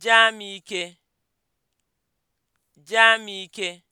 Jamike, jamike.